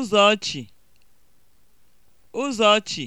Ụzọchi (ụzọchi)